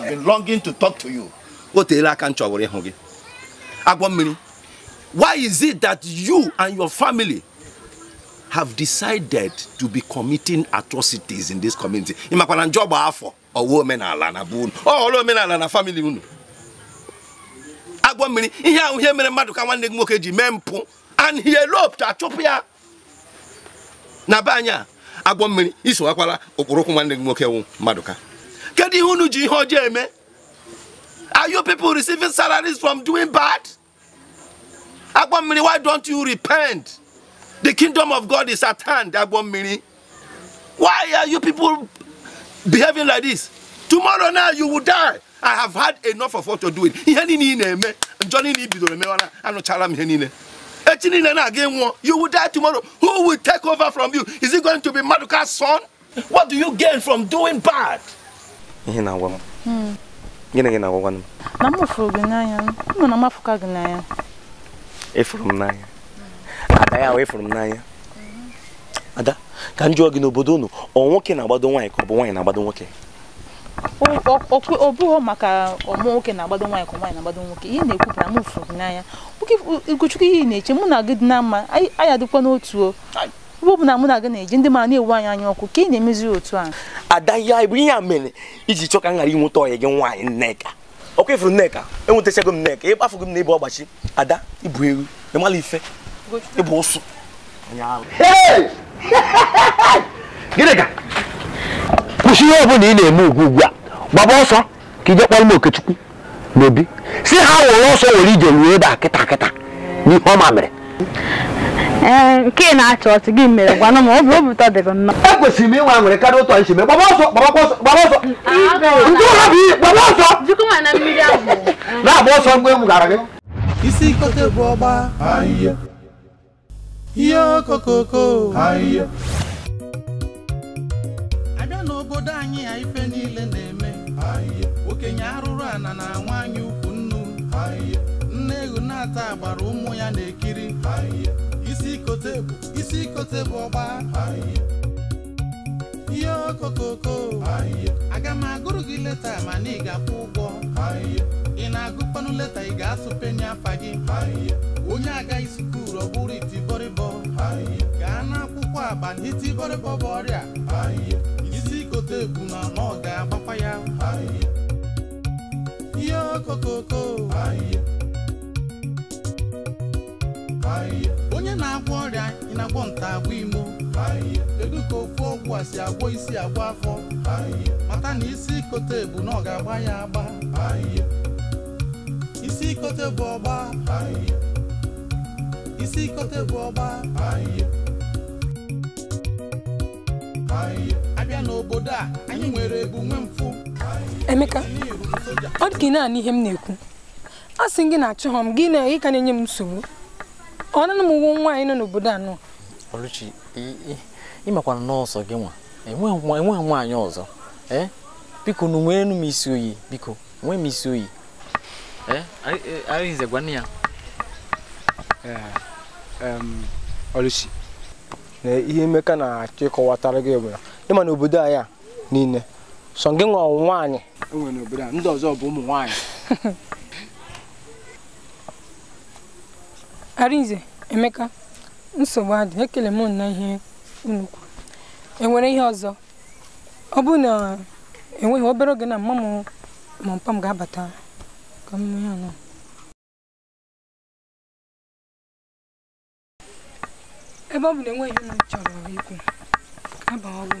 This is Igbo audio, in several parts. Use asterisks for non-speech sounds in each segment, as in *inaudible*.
have been longing to talk to you. O teela aka m chọbụrụ ịhụ gị. Agwọ Why is it that you and your family have decided to be committing atrocities in this community? Ị makwa na njọ gba afọ ọwa omenala na bụ unu. Ọ ọrụ omenala na family unu. Agwọ mmiri ihe ahụ ihe mere mmadụ ka nwanne gị nwoke ji mee mpụ and he eloped achụpụ ya na be anyị a agwọ mmiri isowakwala okporụkwụ nwanne gị nwoke wụ mmadụ kedu ihe unu ji ihe ọjọọ eme are you people receiving salaries from doing bad agbo mmiri why don't you repent the kingdom of god is at hand agbo mmiri why are you people behaving like this tomorrow now you will die i have had enough of what you're doing ihe niile ị na-eme njọ niile ị bidoro emewara anụchara m ihe niile echi niile na-aga ịnwụọ you will die tomorrow who will take over from you is it going to be maduka's son what do you gain from doing bad ihe na-agwa m hmm. gịnị gị na-agwagwa agwa m na m fụrụ gị n'anya m na m afụka gị n'anya efuru m n'anya ada ya wee fụrụ m n'anya ada ka m jụọ gị n'obodo unu ọ nwoke na-agbado nwaanyị ka ọ bụ nwaanyị na-agbado nwoke ọ bụghị maka ọmụ nwoke na-agbado nwaanyị ka nwaanyị na-agbado nwoke ihe na-ekwu na m fụrụ gị n'anya Ugochukwu ihe na-eche mụ na gị dị na mma anyị adịkwa n'otu o ebe ọ bụ na mụ e na gị na-eji ndị mara na-ewu anyị anya ọkụ ka ị na-emezi otu ahụ ada ihe anyị bụ ihe a mere iji chọ ka m ghara inweta ọyị gị nwaanyị nneka ọkwa ifuru nneka enwetachago m nneka ịkpafugo m na ịbụ ọgbachi ada ịbụ eru ịmala ife ịbụ ụsụ *laughs* gịnị ka kwụsị ihe ọbụla ị na-eme ugwu ugwu a gbaba ọsọ ka ije kpọrọ m okechukwu n'obi si ha were ọsọ were ije ruo ebe a kịta kịta n'ihe ọma mere nke na-achọ ọchị gị mere gwanụ m obi obi ụtọ dịrị nnọọ ekwesịrị m ịnwe nwere karịa ụtọ nchime gbaba ọsọ gbaba ọsọ gbaba ọsọ ndị ụlọ bụ gbaba ọsọ na-agba ọsọ mgbe m gara gị isi kote bụ ọgba ahịhịa ihe okokoko ahịhịa abịa n'obodo anyị a ife niile na-eme ahịhịa. okenye arụrụ ana na anyị ukwu nnu nne ehu gbara ụmụ ya na-ekiri kote bụ isi kote bụ ọgba ihe okokoko aga m agụrụ gị leta mana ị ga-akwụ ụgwọ ị na-agụkpanụ leta ị ga-asụ penye gị onye agaghị skuul ọ bụrụ itibọrịbọ gaa n'akwụkwọ aba na itibọrịbọ bụ ọrịa isi kote bụ na ọ ga-agbakwa ya ihe okokoko onye na-agwọ ọrịa ị na-agwọ nta agwọ imo Kedu ka ofu ọgwụ a si agwọ isi agwọ afọ mata na isi ikote bụ na ọ ga-agba ya agba isi ikote bụ ọgba isi ikote bụ abịa n'obodo a anyị nwere ebu nwe mfụ Emeka ọ dị ka ị na ihe m na-ekwu a sị gị na achọghọ m gị na ị ka na-enye m nsogbu ọ na m nwa nwaanyị nọ n'obodo a Ọlụchi Oluchi ịmakwana n'ọsọ gị nwa enweghị e nwaanyị ọzọ ee biko nwee nweenụ m isi oyi biko nwee m isi oyi e? arịnze e, gwanụ ya Oluchi na ihe emeka na-achọ ịkọwatara gị bụ ịma n'obodo anyị a niile sọ gị nwa nwaanyị ndị ọzọ bụ ụmụ nwaanyị *laughs* Arinze Emeka nsogbu adị ekele m na ihe unu enwere ihe ọzọ ọ bụ na enweghị obere oge na mma m ma mpa ga-abata ka m ihe anọ ebe ọ bụ na enweghị ihe m chọrọ ikwu ọ bụ.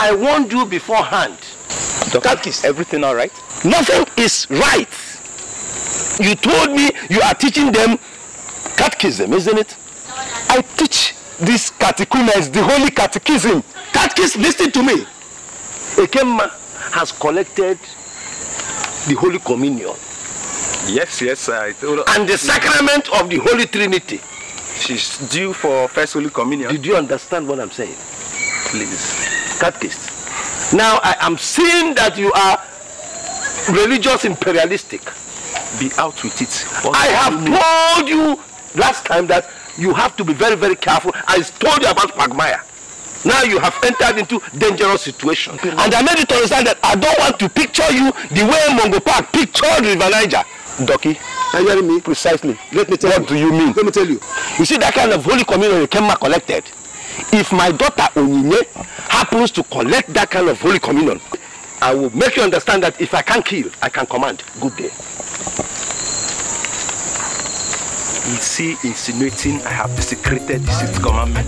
I warned you beforehand. Doctor, is everything all right? Nothing is right. You told me you are teaching them catechism, isn't it? I teach these catechumens, the holy catechism. Catechism, listen to me. Ekema has collected the Holy Communion. Yes, yes, I told And the sacrament of the Holy Trinity. She's due for First Holy Communion. Did you understand what I'm saying? Please. catechists. Now I am seeing that you are religious imperialistic. Be out with it. What I have told you last time that you have to be very, very careful. I told you about Magmire. Now you have entered into dangerous situation. Okay, and I made you to understand that I don't want to picture you the way Mongo Park pictured River Niger. Ducky, are you hearing me? Precisely. Let me tell what you. What do you mean? Let me tell you. You see that kind of holy communion you came collected if my daughter Onyinye happens to collect that kind of holy communion, I will make you understand that if I can kill, I can command. Good day. You see, insinuating I have desecrated the sixth commandment?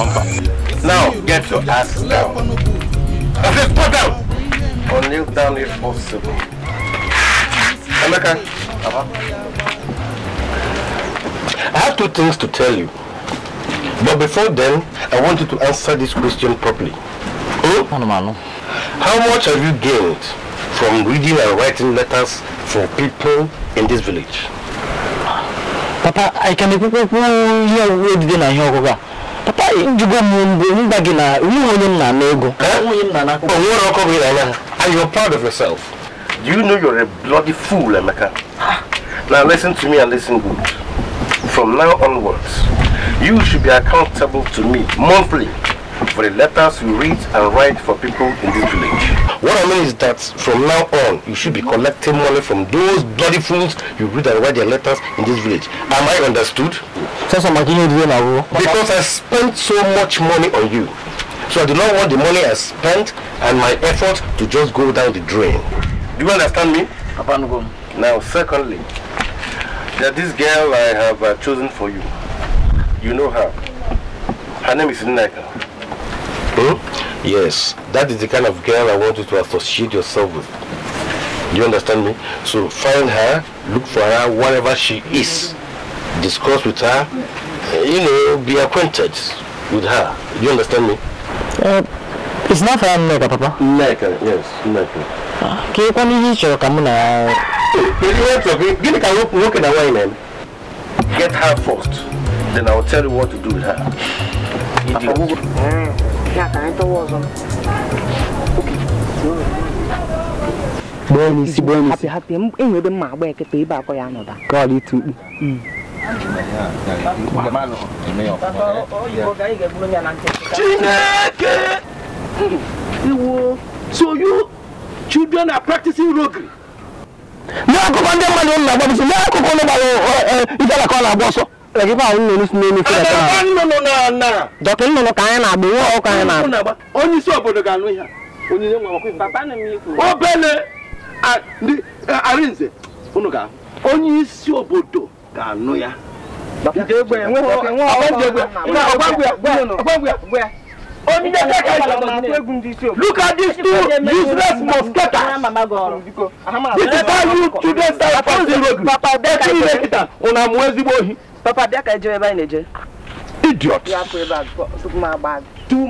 Umpa. Now, get your ass down. I said, go down! Or kneel down if possible. Emeka. Uh I have two things to tell you. But before then, I want you to answer this question properly. Hmm? How much have you gained from reading and writing letters for people in this village? Papa, I can be here with dinner here. Papa, you go You back in a woman na nego. And oh, you're proud of yourself. Do you know you're a bloody fool, Emeka? Now listen to me and listen good. From now onwards, you should be accountable to me monthly for the letters you read and write for people in this village. What I mean is that from now on, you should be collecting money from those bloody fools you read and write their letters in this village. Am I understood? Because I spent so much money on you. So I do not want the money I spent and my effort to just go down the drain. Do you understand me? Now, secondly, that this girl I have uh, chosen for you, you know her. Her name is Nneka. Hmm? Yes, that is the kind of girl I want you to associate yourself with. You understand me? So find her, look for her wherever she is. Discuss with her, you know, be acquainted with her. You understand me? Uh, it's not her, Nneka, Papa. Nneka, yes, Nneka. Can you kwana ihe ị chọrọ get her first Then I will tell you what to do with her. Idiot. Bọ́ọ̀lù sí bọ́ọ̀lù sí. Happy happy ẹ̀yìn ọdún máa gbọ́ ẹ̀kẹ́tọ̀ ibà kọ́ ya nọ̀dà. Kọ́ọ̀lù tù ú. Chineke! Iwo! So you children are practicing roguery? N'akụkọ ndị mmadụ nna gbabisi n'akụkụ ndị gbara ịdara ka ọ na-agba ọsọ. dọkịta nnụnụ ka anyị na-agba nwa ọkụ anyị na-agba onye isi obodo ga-anụ ihe obele arinze unu ga onye isi obodo ga-anụ ya Look at these two useless mosquitoes. This is how you children die zero. Papa, that's papa bịa ka eje ebe anyị na-eje idiot ọhọ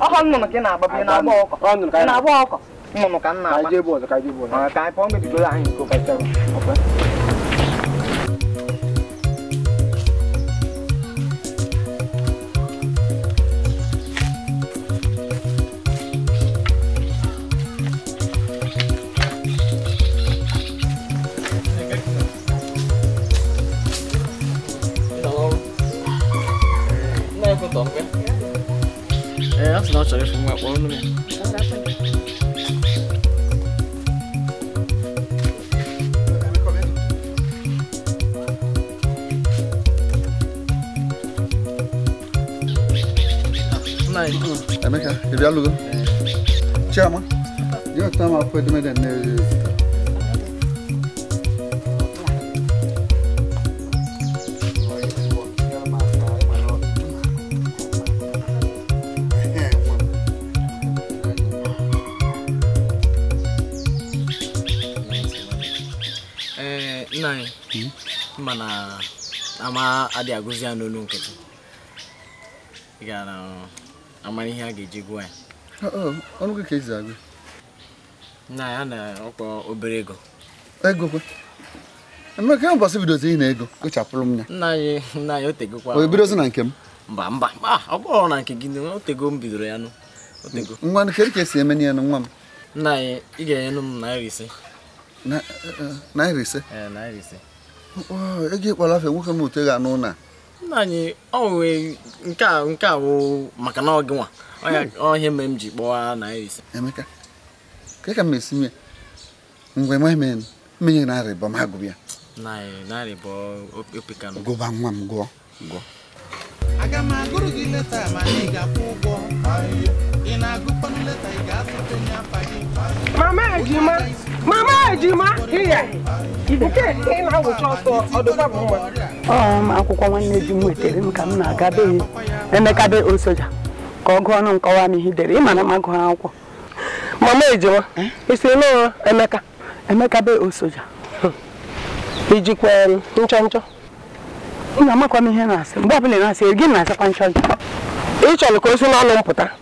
oh, oh, oh, nnụnụ ka ị na-agba bi na-agba ọkọ nnụnụ ka m na-agba saber si me acuerdo. Nej. Ja, men kanske. Det blir aldrig. Tja, man. Jag tar mig på det med den. na ama adịghị agụzi ya n'olu nkịtị ị gara amara ihe a ga-eji gụọ ya ọnụ gị ka ezi agụ na ya na ọkpọ obere ego ego kwe emeka ya mbọsị bidozi ị na ego kpochapụrụ m ya nna anyị nna anyị otegokwa o ebidozi na nke m mba mba ọ bụrụ na nke gị otego m bidoro ya nụ otego nwa kedu ka esi eme ya nụ nwa m nna anyị ị ga-enyenụ m naira ise eh, eh, naira ise eh, naira ise ego afọ nwoke m ote ga n'ụna nna anyị onwe nke a nke a bụ maka na ọ gị nwa m ji kpọọ naira emeka ka ka m esi nye mgbe nwa men mmenye na arịbọ m agụbịa ya narịbọ opekanụ gụba nwa m gụọ gụọ aga m agụrụ gị leta ma ga-akwụ Mama Ejima, Mama Ejima, nke ị na-awụcha ọsọ bụ akwụkwọ nwanne m m ka m na-aga Emeka Osoja ka ọ gụọ ọnụ dere na m akwụkwọ. Mama Ejima, ị sị n'ụlọ Emeka Emeka be Osoja. Ijikwa nchọ nchọ. Nna amakwa m na-asị mgbe na asịkwa nchọ Ị chọrọ ka o si n'ọnụ mpụta.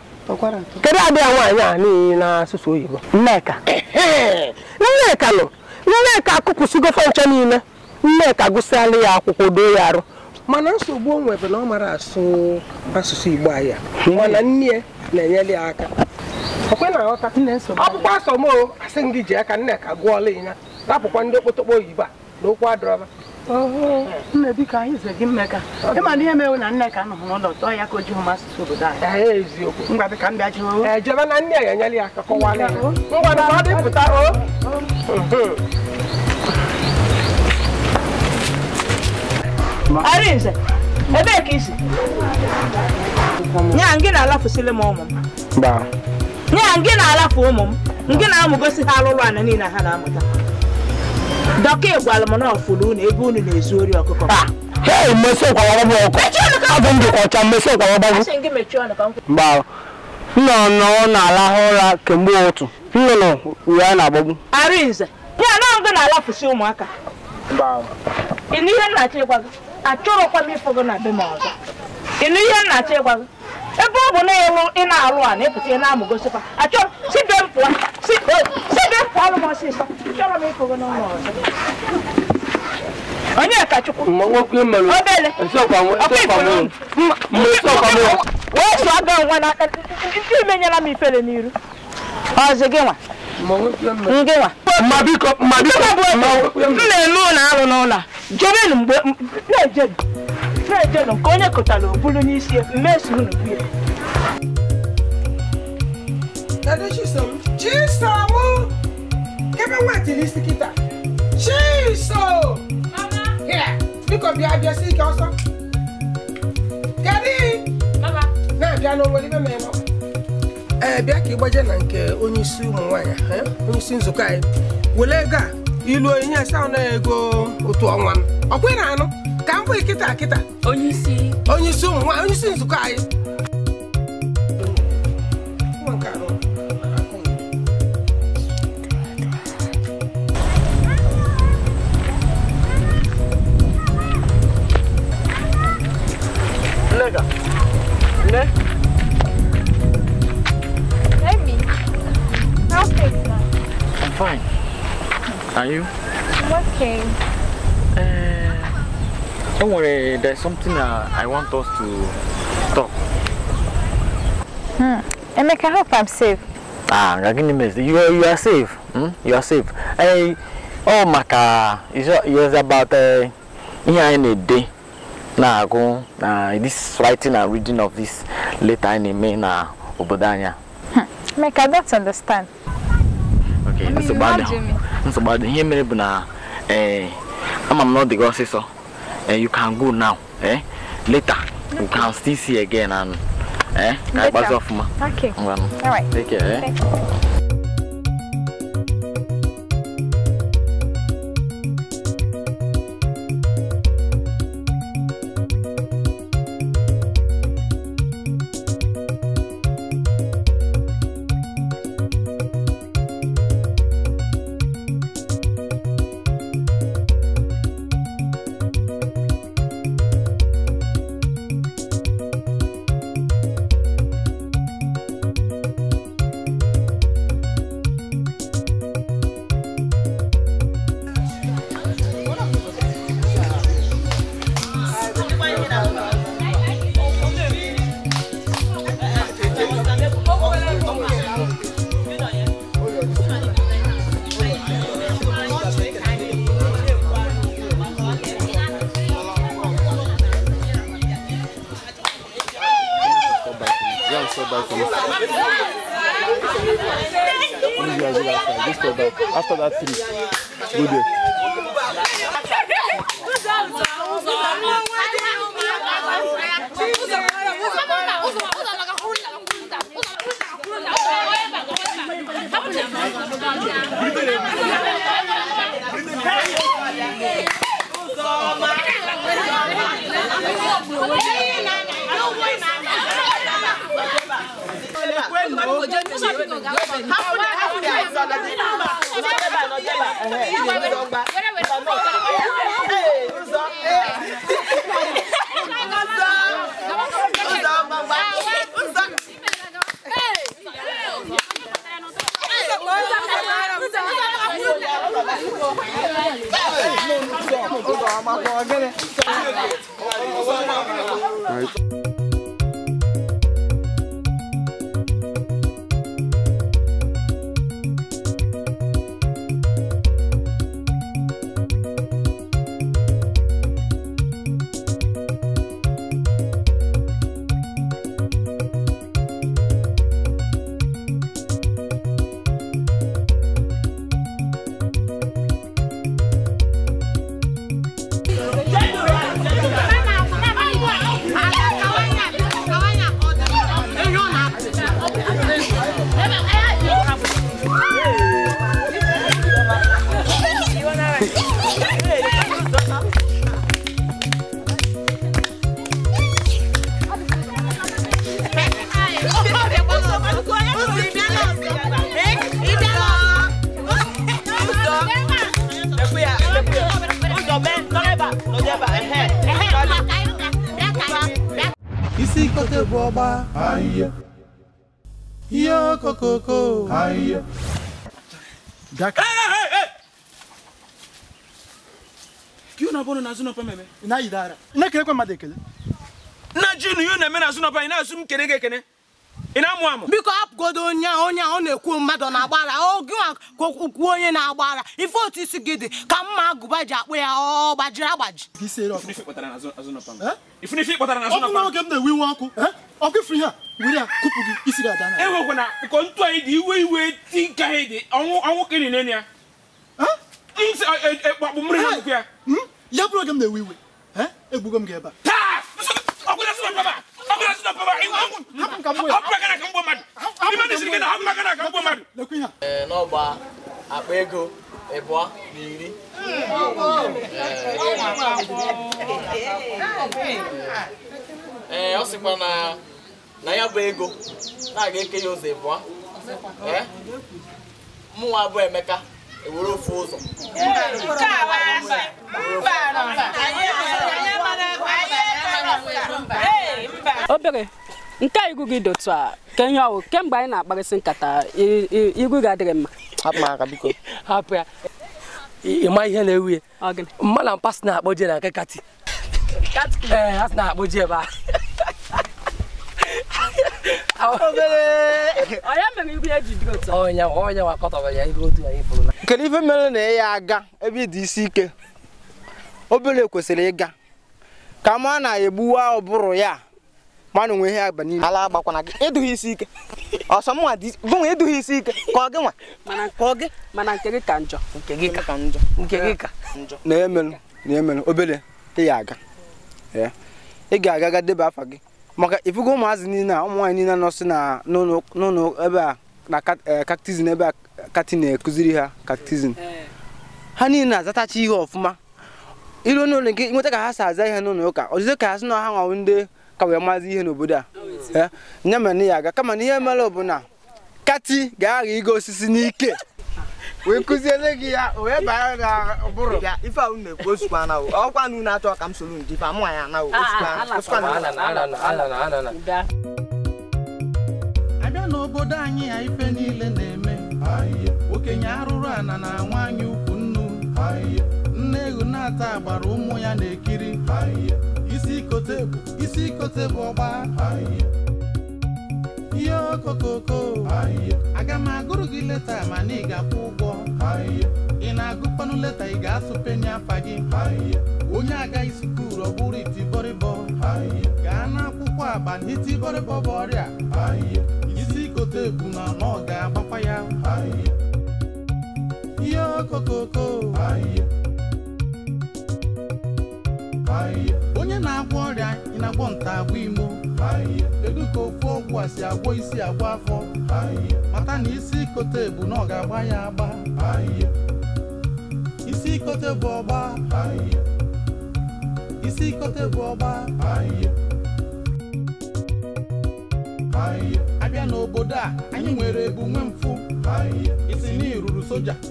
kedu abịa nwaanyị a n'ihi n'asụsụ oyibo nneka nneka nọ nneka akụpụsigo fọncha niile nneka gụsịala ya akwụkwọ doo ya arụ mana nsogbu o nwebe na ọ mara asụ asụsụ igbo ahịa, mana nne na-enyere ya aka ọkpụkpa asọmụ asị gị ji aka nneka gụọla ya rapụkwa ndị okpotokpo oyibo a na okwu adọrọba nne biko anyị ze gị mmeka ịma na ihe mewe na nne ka anụhụ n'ụlọ tọọ ya ka o ji hụ masịsị obodo anyị ngwa bịka m bịa jewe ejebe na nne ya enyela ya ka kọwara ngwa na ọ dị pụta o Arinze, ebee ka isi? Nya gị na-alafụsịlị m ụmụ m. Nya gị na-alafụ ụmụ m, gị na-amụgosi ha alụlụ ana niile ha na-amụta. dọkịta ịgwalụ m na ọfụrụ unu ebe unu na-ezu ori ọkụkọ ah, hei mmesi kwaragbagbu ọkụ abụ m dịkwa ọcha mmesi kwaragbagbu mgbarụ nnụnụ na-alahụ ụra kemgbe ụtụ nnụnụ uwe a na-agbagbu arinze ya na ngụ na-alafụsi ụmụaka ịnụ ihe nna ịgwa gị achọrọkwa m ịfụ na be m ọzọ ịnụ ihe nna ịgwa gị ebe ọ bụ na ị na-alụ a na-epụta ị na-amụ gosikwa achọrọ sibe m pụọ sibe eh, onye chọrọ m ịkụgo n'ụlọ ọzọ onye kachukwu obele wee sụọ nwa ndị imenyela m n'iru kebe wait ni sikita chiso here biko bia bia si ka ọsọ kedi mama na bia na oweri meme ma ee bịa ka ị gbaje na nke onyeisi ụmụ nwaanyị onyeisi nzukọ anyị were ego a ilu onye asa na ego otu ọnwa m ọkwa ị na-anụ ka m bụ kịta kịta onyeisi onyeisi ụmụ nwaanyị onyeisi nzukọ anyị Are you? i working. Uh, don't worry, there's something uh, I want us to talk. Hmm. Emeka, I hope I'm safe. Ah, Ragini, you are, you are safe. Hmm? You are safe. Hey, oh, Maka, it's, it's about uh, here in a day. Now, go, uh, this writing and reading of this letter in a main Obodanya. Hmm. Emeka, I don't understand. Okay, I mean, that's about it. nsogbu ihe mere bụ na eh, ama m na ọ dị gị ọsịsọ eh, you can go now eh? later you can still see again and eh? ka ịkpazi ọfụma ngwanụ take care eh? after that. After that, three. Good day. Hakuna hakuna. Nojeba nojeba. Yo, Coco. Hiya. Daka. Hey, hey, hey. Kiyo na bono na zuno pa meme. Na idara. Na kire kwa madekele. Na jinu yo na me na zuno pa ina zum kene kene. Ina mu amu. Biko hapụgodo onye a onye a ọ na-ekwu mmadụ na-agbara oge ka okwu onye na-agbara ife otu isi gị ka mma agụba ji akpụ ya ọ gbajiri agbaji. ife Ifunife kpatara na azụ nọpa m. Ifunife kpatara na azụ nọpa m. Ọ bụrụ oge m na-ewe iwe ọkụ ọkụ ifuru ihe e kụpụ gị gị ntụ anyị dị iwe iwe ti nke anyị dị ọnwụ ka ị na-enye ya ekpakpụ mmiri na ya ya bụrụ oge m na-ewe iwe egbugo m ga ebe n'ọgba akpa ego ịbụọ eh, na iri ee eh, eh, ọ sịkwa na na ya bụ ego na-aga eke ya ụzọ ịbụọ eh? eh? mụnwa bụ Emeka ewere ofu ụzọ obere nke a iru gị dotu a ka ihe ọwụ kemgbe anyị na-akparịsị nkata iru gị adịghị mma hapụ ya ịma ihe na-ewu ya mmadụ mpasị na-akpọ je na nke kati ee eh, ha si na-akpọ ebe Nkele ife mere na ya aga ebe dị isi ike obere kwesịrị ịga ka ma na-egbuwa ụbụrụ ya mana onwe ihe agba n'ime ala agbakwana gị ịdụghị isi ike ọsọ ọsọmnwa gụnwa ịdụghị isi ike ka ọ gị nwa mana nke gị mana nke gị ka njọ nke gị ka njọ nke gị ka njọ na-emelụ na-emelụ obere ị ya aga ị ga-aga ga debe afa gị maka ifugo ụmụazị niile a ụmụ nwaanyị niile nọsị na n'ụlọ ebe a na kaktizin e, ebe a kati na-ekụziri ha kaktizin ha niile na-azatacha ihe ọfụma iru n'ụlọ nke nweta ka ha si aza ihe n'ụlọ ụka ọzụzụ ka ha sị na ha nwawo ndị ka wee maazị ihe n'obodo a oh, ya ya ya aga kama na ihe mere bụ na kati ga-agha igo osisi n'ike wee kụziele gị ya wee baa na ụbụrụ ife ahụ na-ekwu osikwa na ọkwa na unu achọ ka m soro ndị ife amụ anya na abịa ah, n'obodo anyị ya ife niile na-eme okenye arụrụ ana na nwaanyị ukwu nnu nne ehu na-ata agbara ụmụ ya na-ekiri isi kote bụ ọgba ihe okokoko aga m agụrụ gị leta mana ị ga-akwụ ụgwọ ị na-agụkpanụ leta ị ga-asụ penye afa gị onye agaghị sukuru ọ bụrụ itibọrịbọ gaa n'akwụkwọ aba n'itibọrịbọ bụ ọrịa isi kote ebu na ọ ga-agbakwa ya ihe okokoko onye na-agwọ ọrịa ị na-agwọ nta agwọ imo kedu ka ofu ọgwụ a si agwọ isi agwọ afọ mata na isi ikote bụ na ọ ga-agba ya agba isi ikote bụ ọgba isi ikote bụ ọgba abịa n'obodo a anyị nwere ebu nwe mfụ isi na iruru soja